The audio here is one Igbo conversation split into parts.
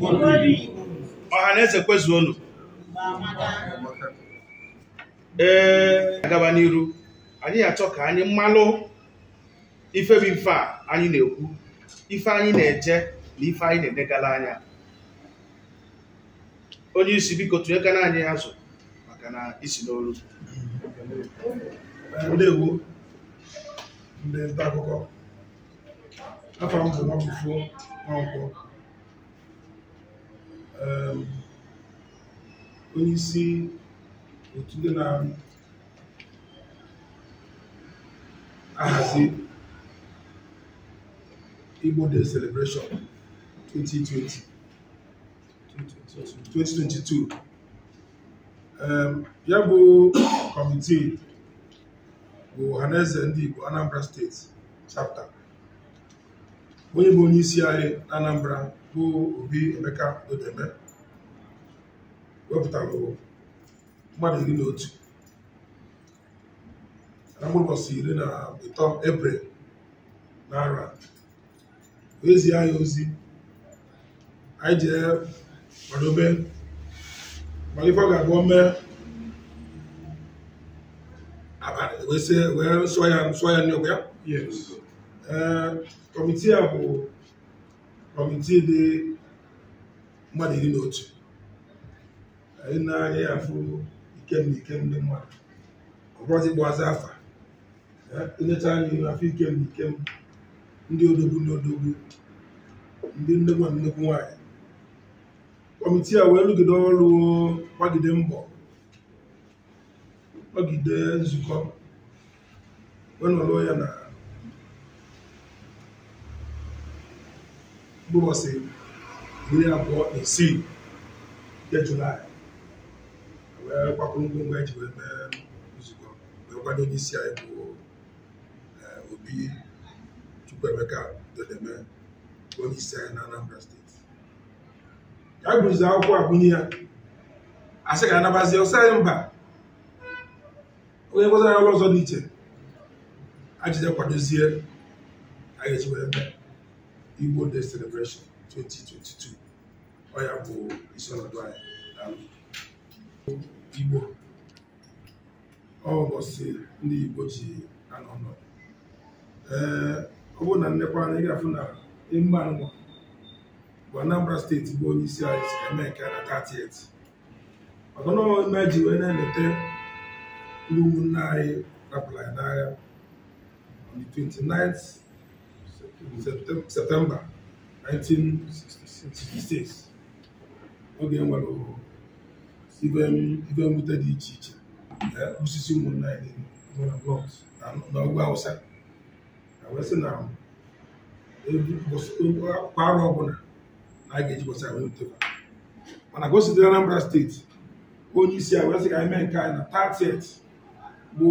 ọha na eze ọnụ. ee agaba n'iru anyị ga achọ ka anyị mmalụ ife bụ ife a anyị na-ekwu ife anyị na-eje na ife anyị na-edegala anya onye isi biko na anyị azụ maka na isi n'olu ndewo ndị nta akụkọ afọ bụ Um, onyeisi otu ndị na-ahazi Igbo the celebration 2020 2022 um, ya bụ kọmitii bụ ọhaneze ndị Igbo Anambra steeti chapter onye bụ onye isi anyị na Anambra bụ Obi Emeka Odeme wepụtara mmadụ iri na otu na mgbụbọchị iri na ịtọ ebrel na ara ezi anyị ozi anyị jee kwadobe mana ife ọ ga-abụ mee abalị wee sụọ ya nsọ ya ya kọmitii eh, a bụ kọmitii dị mmadụ iri na otu anyị na-anya ya afụ ikemna ikemna mmadụ ọgwazi gbazi afa enyecha eh, anyị afọ na ikem ndị odogwu na odogwu ndị nnekwu na nnekwu nwaanyị kọmitii a wee rụgide ọrụ gbagide mbọ gbagide nzukọ wee nọrọ ya na mkpụrụọsị iri abụọ na isii nke julaị wee gbakwuru ngwongwo eji wee mee nzukọ wee kwado onye isi anyị bụ eh, obi chukwuemeka dodeme onye isi anyị na anambra steeti ya gụrụzi akwụkwọ agụnye ya asị ga anabazi ọsọ anyị mba onye nkụzi anyị ọrụ ọzọ dị iche ajije kwadozie anyị eji wee mee Igbo Day Celebration 2022 ọ ya bụ isi ọnọdụ anyị um, Igbo ọ ụbọchị ndị Igbo ji anọ ọnọdụ ee eh, ọ bụrụ na nnekwa anya ị ga-afụ na emume nwa. bụ Anambra steeti bụ onye isi anyị si eme nke na 38 ọtọ na ime ji wee na-eleta ndị ụmụnne anyị rapụrụ anyị n'agha on the 29th septemba 1966 oge nwere "Igwe mwute dị iche iche osisi ụmụnna anyị na ọgwụ awụsa Na wee na kwa arọ ọbụla na a ga-eji bọsa wee nteba mana ka o sitere Anambra steeti onye isi a wee sị ka anyị mee nke anyị na 30th bụ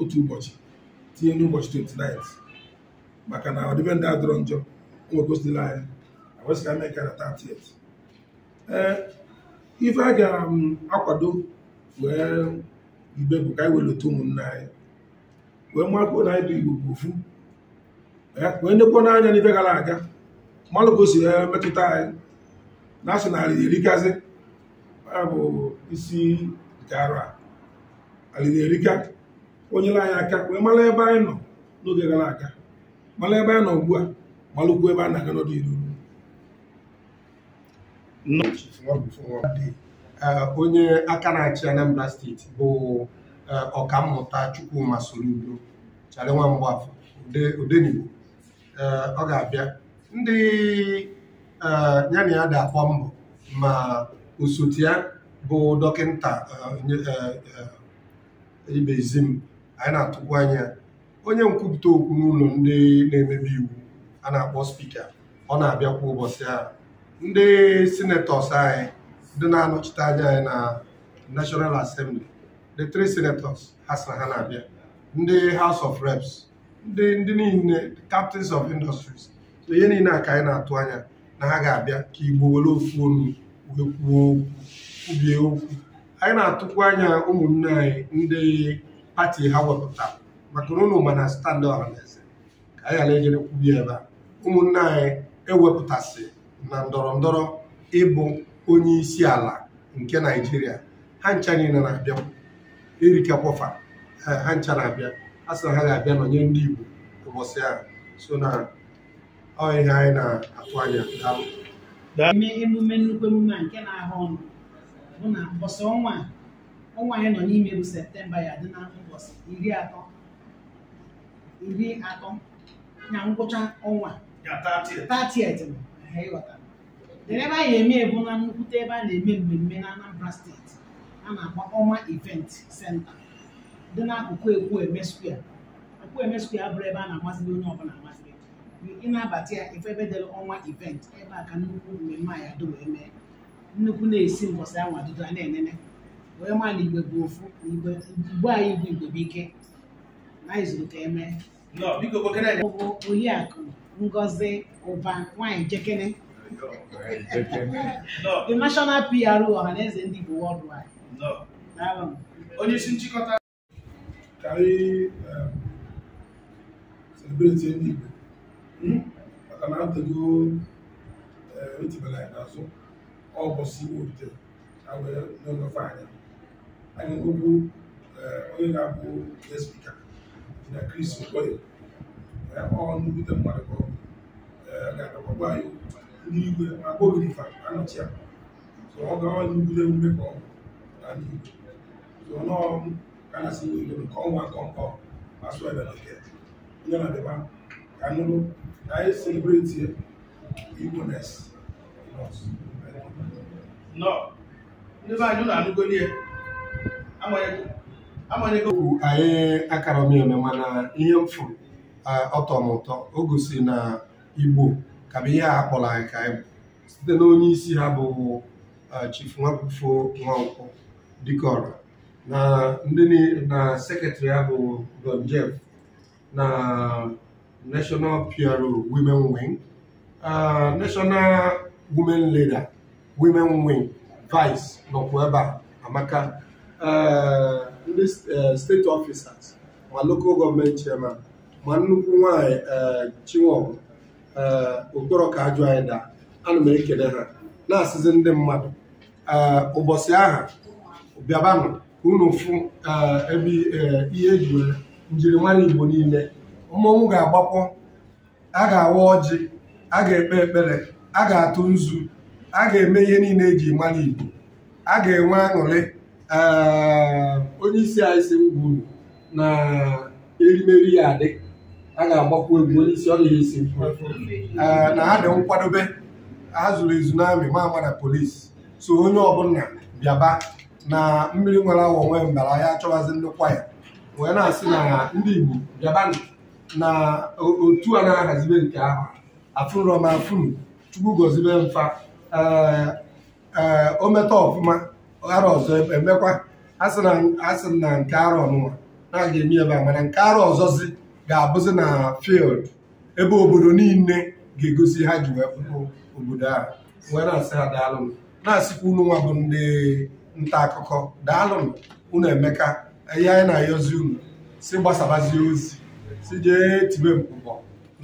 otu ụbọchị tinye n'ụbọchị 29 maka na ọdịbendị adọrọ njọ nwegosila anyị awesịka mee kara 30 ee ife a ga-akwado um, wee ibe bụ ka anyị welata ụmụnna anyị wee makwuo na anyị bụ igbo ofu wee nekwuo n'anya n'ife gara aga mmanụ ka o metụta anyị na asị na alịrị erikazi bụ isi nke arụ a alịrị erika onyere anyị aka wee mara ebe anyị nọ n'oge gara aga malụ ebe a nọ ugbu a malụkwu ebe a na-aga n'ọdịnihu onye aka na-achị Anambra steeti bụ ọkammụta Chukwuma Soludo chara nwa mgbafọ Odenigbo ọ ga-abịa ndị ya na ya ga-akpọ mbọ ma osote ya bụ dọkịta ibezim anyị na-atụkwu anya onye nkwupụta okwu n'ụlọ ndị na-emebi iwu a na-akpọ spika ọ na-abịa kwa ụbọchị a ndị senetọs anyị ndị na-anọchite anya anyị na National Assembly the three senators ha sị ha na-abịa ndị haus of Reps ndị ndị niile captains of industries so ihe niile a ka anyị na-atụ anya na ha ga-abịa ka Igbo were ofu onu wee kwuo okwu kwubie okwu anyị na-atụkwu anya ụmụnne anyị ndị pati ha wepụtara maka na ụnụ ma na standị ọhaneze ka anyị ghara ejere kwubi ebe a ụmụnne anyị ewepụtasị na ndọrọ ndọrọ ịbụ onye isi ala nke naijiria ha ncha niile na-abịa kwọfa ha ncha na-abịa a sị na ha ga-abịa nọnye ndị igbo ụbọchị ahụ so na ọ ihe anyị na-atụ anya daalụ eme emume nnukwu emume a nke na-ahụ ọnụ bụ na mbọsị ọnwa ọnwa anyị nọ n'ime bụ septemba ya dị na ụbọchị iri atọ iri atọ na ngwụcha ọnwa ebe a na-eme ebu na nnukwute ebe a na-eme mmemme na Anambra steeti a na-akpọ ọma event senta dị n'akụkụ Ekwueme square Ekwueme square abụrụ ebe a na-amasịrị onye ọbụla amasịrị ị na-abata ya ife ebe dere ọnwa event ebe a ka nnukwu mmemme a ya dị wee mee nnukwu na-esi mbọsị anwa dudo a na-enene wee maa na igbe bụ ofu igbe anyị igwe igbe ike bụ oriakụ ngozi ụba nwanyị jekene the national PRO ọhaneze ndị Igbo worldwide onye isi nchịkọta ka anyị um, celebrate ndị Igbo hmm? maka na atego um, etibela anyị n'azụ ọbọsi orite na wee n'oge anya anyị nwekwu um, onye ga-abụ na Chris Okoye ọ nnukwute mmadụ ka ọ ndị n'igwe ma gogirifa anọchi ya so ọ gawa nnukwute ka ọ ndị so ka na si n'igwe nke ọnwa nke ma sụọ ebe onye na-adịba ka nụrụ ka anyị selebreti nes nọ ndị be anyị ụlọ amanyegwu anyị akara m mana ihe m fụrụ ọtọ m ụtọ o gosi na igbo ka bụ ihe a kpọrọ anyị ka anyị site na onye isi ha bụ Chief dị ka ọrụ na ndị na sekretrị ha bụ Don Jeff na National PRO Women Wing National Women Leader Women Wing Vice nọkwa ebe a amaka ndị uh, steeti ọfisas ma lokal gọọmenti chairman ma nnukwu nwanyị uh, chinwọbụ uh, okporo ka ajụ anyị daa ana m ekele ha na-asịzi ndị mmadụ ụbọchị aha bịabanụ ka unu fụ ebe ihe eji njiri njirimara igbo niile mmọnwụ ga-agbakwọ a ga-awa ọjị a ga-ekpe ekpere a ga-atụ nzu a ga-eme ihe niile eji mara igbo a ga-enwe aṅụrị Ehm, onye isi anyị si na erimeri ya adị a ga-agbakwu egwu onye isi ọrịa isi ehm, na ha dị nkwadobe ha zuru ezu n'amị mama na polisi so onye ọbụla bịaba na mmiri nwere awa onwe mbara ya achọwazi ndịkwa ya wee na-asị na ndị Igbo bịaba na otu a na-ahazibe nke ahụ afụrọma afụrụ chukwu gozibe mfa ee ehm, o meta ọfụma arọ ọzọ e, emekwa asị na nke arọ ọnụnwa na aga eme ebe a mana nke ọzọ ọzọzi ga-abụzi na field ebe obodo niile ga-egosi ha ji wee pụta obodo ahụ wee na-asị ha daalụnụ na-asịkwa unu nwa bụ ndị nta akụkọ daalụnụ unu emeka ihe anyị na-ayọzi unu si gbasabazie ozi si jee tibe mkpụkpọ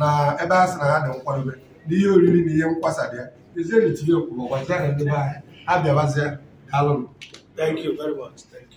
na ebe a sị na ha dị nkwadobe na ihe oriri na ihe nkwasa dị ya ezienyi tibe mkpụkpọ gwazie na ndị be anyị ha Alan, Thank you very much. Thank you.